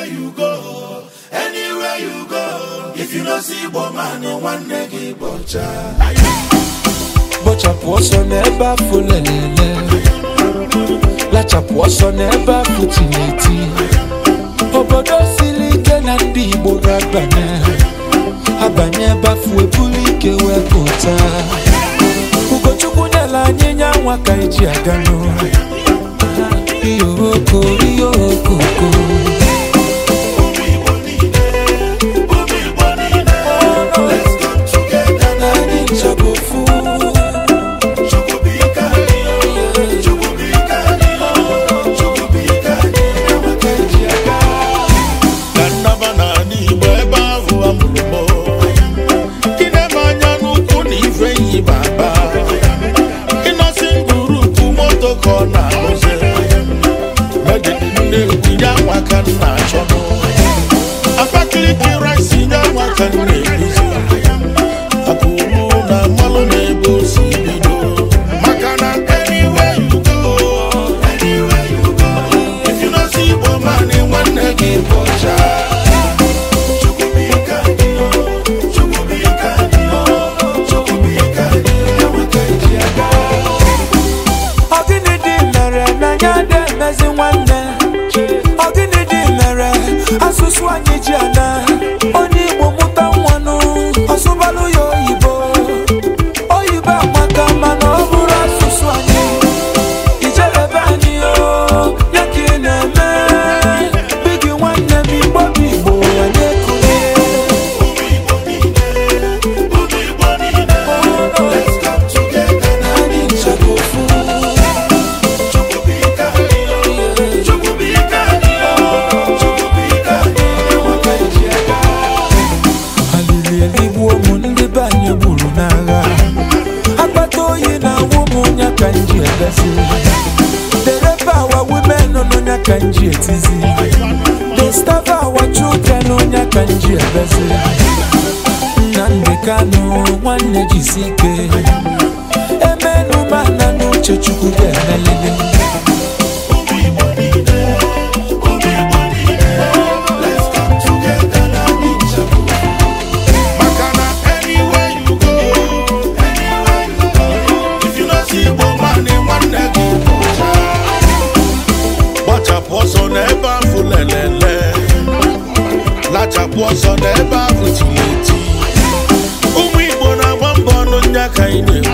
anywhere go if no see nwanne gị bọchapụ ọsọ n'ebe afọ lelele lachapụ ọsọ n'ebe afọ tineti obodo siri ike na ndị igbo ga-abanye abanye ebe afọ ebulu ike wee pụta ugochukwu nyela anyị ka eji aga nwata nna achọ m Abakaliki rice nye nwata nne ezi dereba our women onye ka nji etizi disturb our children onye ka nji ebezi Nnamdi Kanu nwanne na ọsọ n'ebe ahụ tiri eti ụmụ Igbo na-agba mbọ ọnụ nya ka anyị na-ewu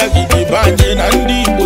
anagide be anyị na ndị